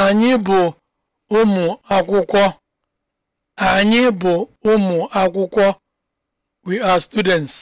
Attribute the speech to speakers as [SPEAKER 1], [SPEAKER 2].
[SPEAKER 1] Anyị bụ ụmụ akwụkwọ. Anyị bụ ụmụ akwụkwọ. We are students.